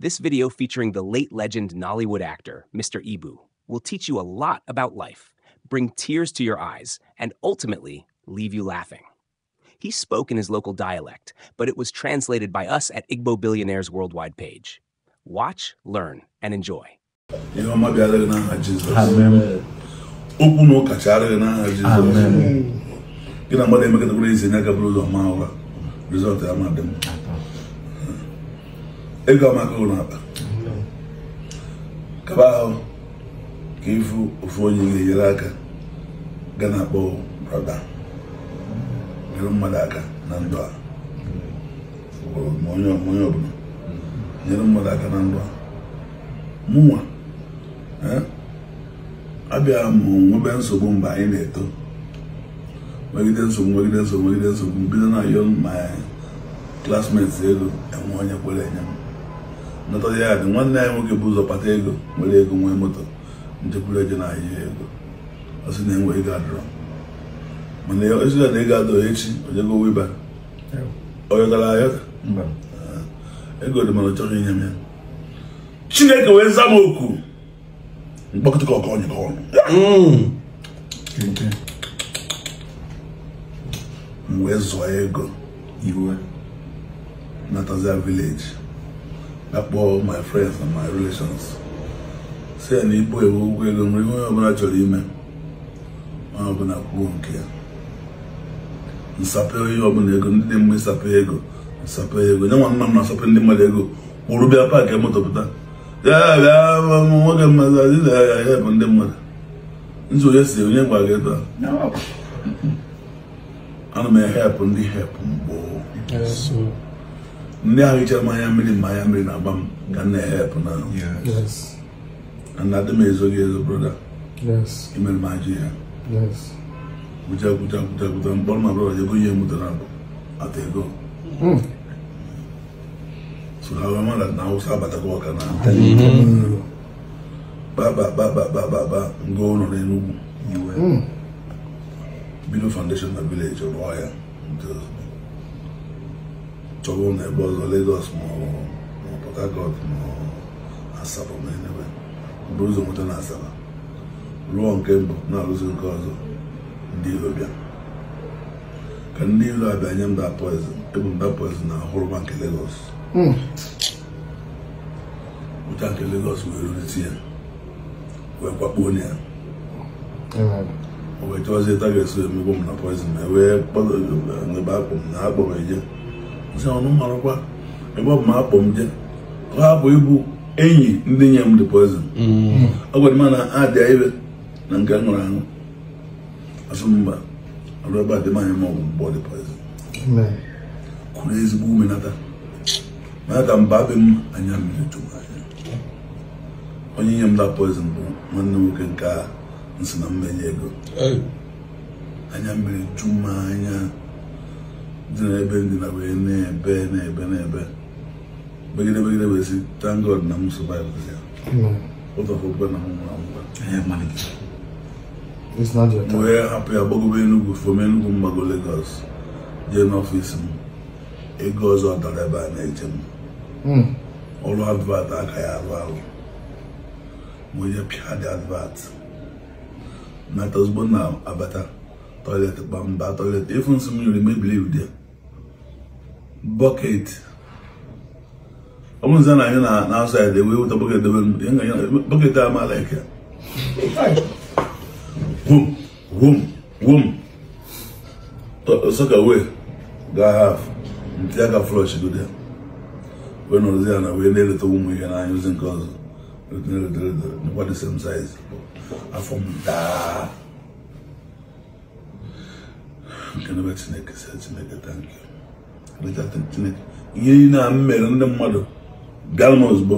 This video featuring the late legend Nollywood actor, Mr. Ibu, will teach you a lot about life, bring tears to your eyes, and ultimately leave you laughing. He spoke in his local dialect, but it was translated by us at Igbo Billionaires Worldwide page. Watch, learn, and enjoy. Amen. Amen. ego amaka ụlọ akpa kaba ahụ ka ịfụ ofu onye na enyere aka ga na-akpọ brada nyere mmadụ aka na ndụ a onye ọbụla nyere mmadụ aka na ndụ a mụnwa eh, abịa mụ nwebe nsogbu mgbe anyị na-eto megide nsogbu megide nsogbu megide nsogbu bido na yon my classmates elu enwe onye kwere enye m nata ya dị nwanne anyị nwoke bụ ụzọ kpata ego nwere ego nwee moto njekwuru eje na ahịa ego ọ sị na enwe ego adọrọ mana ezigbo na ego adọrọ echi ojego wiba oyọtara ayọta ego dị mana ọ chọrọ inye m ya chineke wee zama oku ka ọkọ onye ọnụ mm. m wee zụọ ego iwe nataza vileji akpọ my friends and my relations si ya na ibu ewu ụgwọ ego nwere ihe onye ọbụla chọrọ ime ma ọbụla kwuo nke ya nsapụ ihe ọbụla ego ndị dị mma ịsapụ ego nsape ego nye nwa nna m na-asapụ ndị mmadụ ego kwụrụ bịa paakị emotọpụta ya bịa nwoke mmadụ adịla ya ya bụ ndị mmadụ nji onye si onye gwa gị ebe a ana m ehepụ ndị hepụ mgboo ndị ahụ iche mmanya mmiri manya mmiri na-agba m ka m na-ehepụ na ana dị m ezo gị ezo broda imere m ajụ ya gwụja gwụja gwụja gwụja mkpọrọ ma broda ego ihe mụtara abụ ata ego hmm. so ha wee mara na awụsa ba ọka na kpakpakpakpakpakpakpa nga ụlọ n'Enugwu hmm. bido foundation na village ọrụ ọhịa chọba na ebe ọzọ Lagos maọbụ Port Harcourt ma Asaba ụzọ nweta na Asaba rụọ nke mbụ na-arụzi ọzọ ndị iro bịa ka ndị iro abịa nye m da poizin ebu m da na hụrụba nke Lagos hmm. ụcha nke Lagos wee rurite ya wee kwakpuo o eso bụ m na poizin ma wee ebe akpọ na akpọ m ọnụmarakwa ebe ọ bụ ma akpọ m je ọ hapụ ịbụ enyi ndị nye m dị poizin mm. ọ gwara m na ha dị ire na nke m nwere ahụ asụ mba ọrụ ebe adịm anya ma ọ bụ mgbe ọ dị poizin kụrụ ezigbo ume nata nata mba abị m anya mmiri chụwa anya onye nye m da bụ nwanne nwoke nke a nsị na mmenye ego anya mmiri chụma anya dị n'ebe na wee na-ebe na-ebe na-ebe begide begide wee sị thank God na m survive ya ụtọfụkwe na m nwụrụ anwụ wee hapụ ya gbagobe Enugu fom Enugu mgbago Lagos jee n'ọfịs m ego ọzọ dara ebe a na-eje m hmm. ọrụ advat aka ya arụ arụ ma onye pịa dị advat na tozugbo na abata toilet kpamba toilet ifu nsị m yiri mebiri ude bucket ọ bụrụ nze na anyị na-asụ ya dewe weta bucket dewe bucket a maala eke wom wom wom soka wee ga haf nti aka flush gode wee nọrọzi ya na wee na-eleta ụmụ ihe n'anya ozi nke ọzọ nkwa the same size afọ m Chineke ihe niile a m mere ndị mmadụ bịa m ọrụ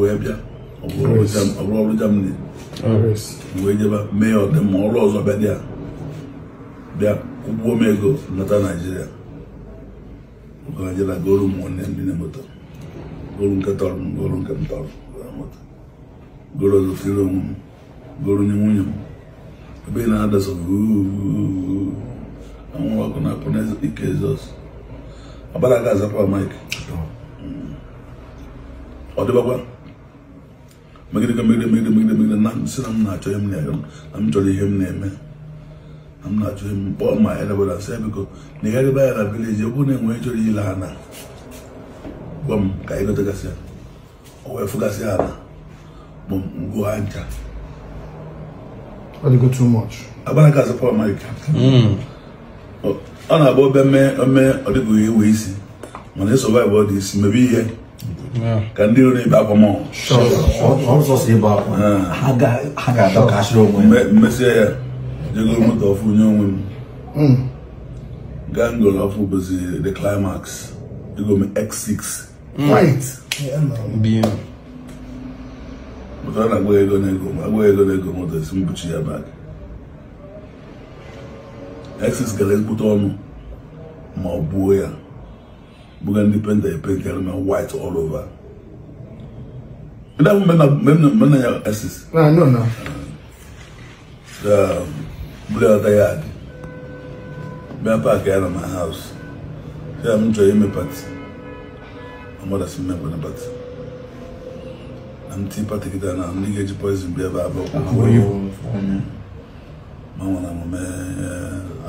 wee bịa ọbụrụ ọrụ wee jebe mee ya ọdịmma ọrụ ọzọ bịa dị ya bịa ụgbọ m ego nata Naijiria ụgwọ Naijiria goro ndị na-emoto goro nke tọrọ m goro nke m tọrọ goro onwe goro nwunye m ebe ị na and we're gonna na the cases. About that guy's up Mike. Or the Baba. Make it make na make it make it make it na sit I'm not to him name. I'm to ya name. I'm not to him but my head about say because the guy village you wouldn't wait to the Bum, go to Gassia. Bum, go ancha. too much. Mike. Hmm. ọ na-agba obe ome ọdịbụghị iwe isi mana ị sọvaịv ọ dị isi mebe ihe ka ndị iro na-ebe akwa mọọ mesịa ya jegoro moto ọfụ nye onwe m gaa ngoro ọfụ bụzi the climax ego m x6 ụtara na agwaghị ego na ego agwaghị ego na ego moto esi mbuchi ya bak ISIS gara ezigbote ọnụ ma ọ buo ya buga ndị penta epenkarị na white all over ndị ahụ mena ya ISIS bulata ya adị bịa paakị ya na my house ya m chọrọ ime pati amadasị mmegbe na pati na m tii pati kịta na ndị ga-eji poizin bịa ebe abụọ manwere omume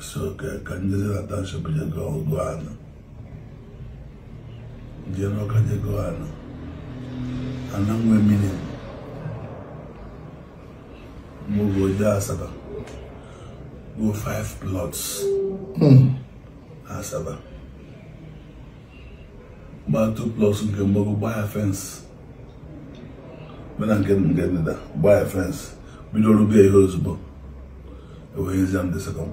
высокая кандидата Наташа Патикова-Гуана. Дианока Дигуана. Она мой миним. Mugo Asaba. Go five plots. Mm. Asaba. Ah, ba two plots nke mbogo gbaa fence. Mena nke nke ndịda gbaa fence. Bido rube ihe ozugbo. Ewee nzi second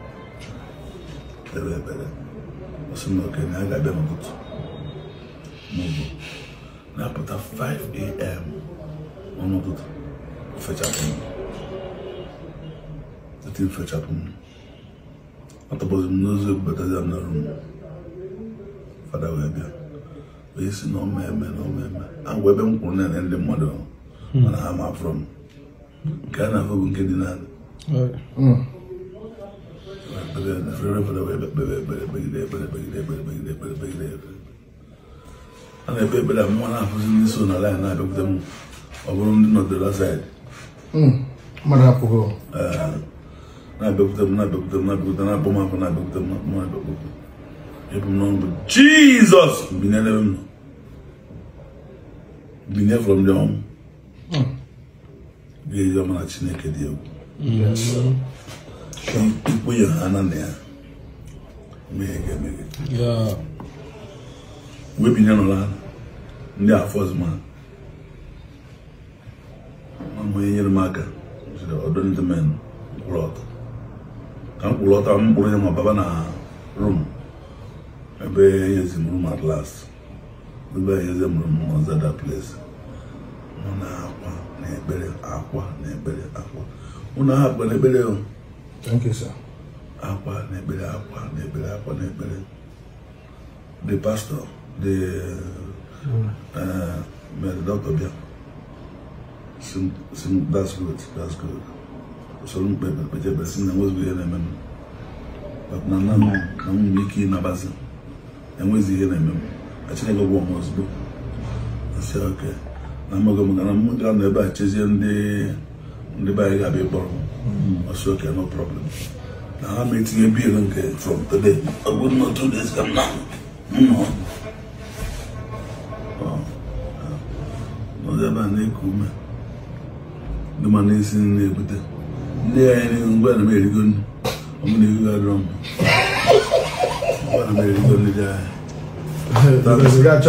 kpere ekpere ọsị na okenye a ga-abịa n'ụtụtụ maọbụ na-apụta 5am n'ụtụtụ ofechapụ eti mfechapụ m atọbọghị m n'ozu ebubatazi m n'ọrụ m fada wee bịa wee si na ọma eme na ọma eme agwa ebe m kwụrụ na ndị mmadụ mana ha ma afụrụ m nke a na-ahụ bụ nke dị naanị 보 Lotusью nan an nan de sè gi rebe fèwaye lae yoța nyè k ours chair Jeezós mwenye two vèm yon mwenye ta nou yon en yo nwenye panne chenye ken dede yon ikpe Yohana na ya mmehie ga-emeghe webinye nụla ndị afọzụma ma onye nyere m aka jiri ọdụ ndị men ka mkpụrụ kwụrụ ya ma baba na rum ebe nyezi m rum at ebe nyezi m ma zada place nọ na akwa na ekpere akwa na ekpere akwa Thank you, sir. Akwa na ekpere, akwa na ekpere, akwa na ekpere. The pastor, the hmm. uh, uh, Dr. Bia. Sim, sim, that's good, that's good. So si na nwezighi ihe na-eme But na nna na m nwere ike ihe na-eme m. A Na mmaga m a ndị ndị be anyị ga-abịa ịkpọrọ hmm. ọsọ oke no problem na ha ma etinye biil nke from today ọ m na two days ka m na nnọ ọzọ ebe a na-eku ume ndị ma na-esi nri na-ebute ndị anyị n'ihu mgbe na m erigo nnu ọmụ na ihu adịrọ m mgbe na m erigo ndị dị anyị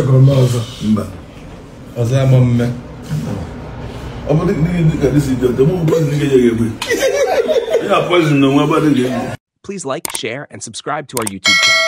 mba ọzọ ya ma mme I'm The poison. No, Please like, share, and subscribe to our YouTube channel.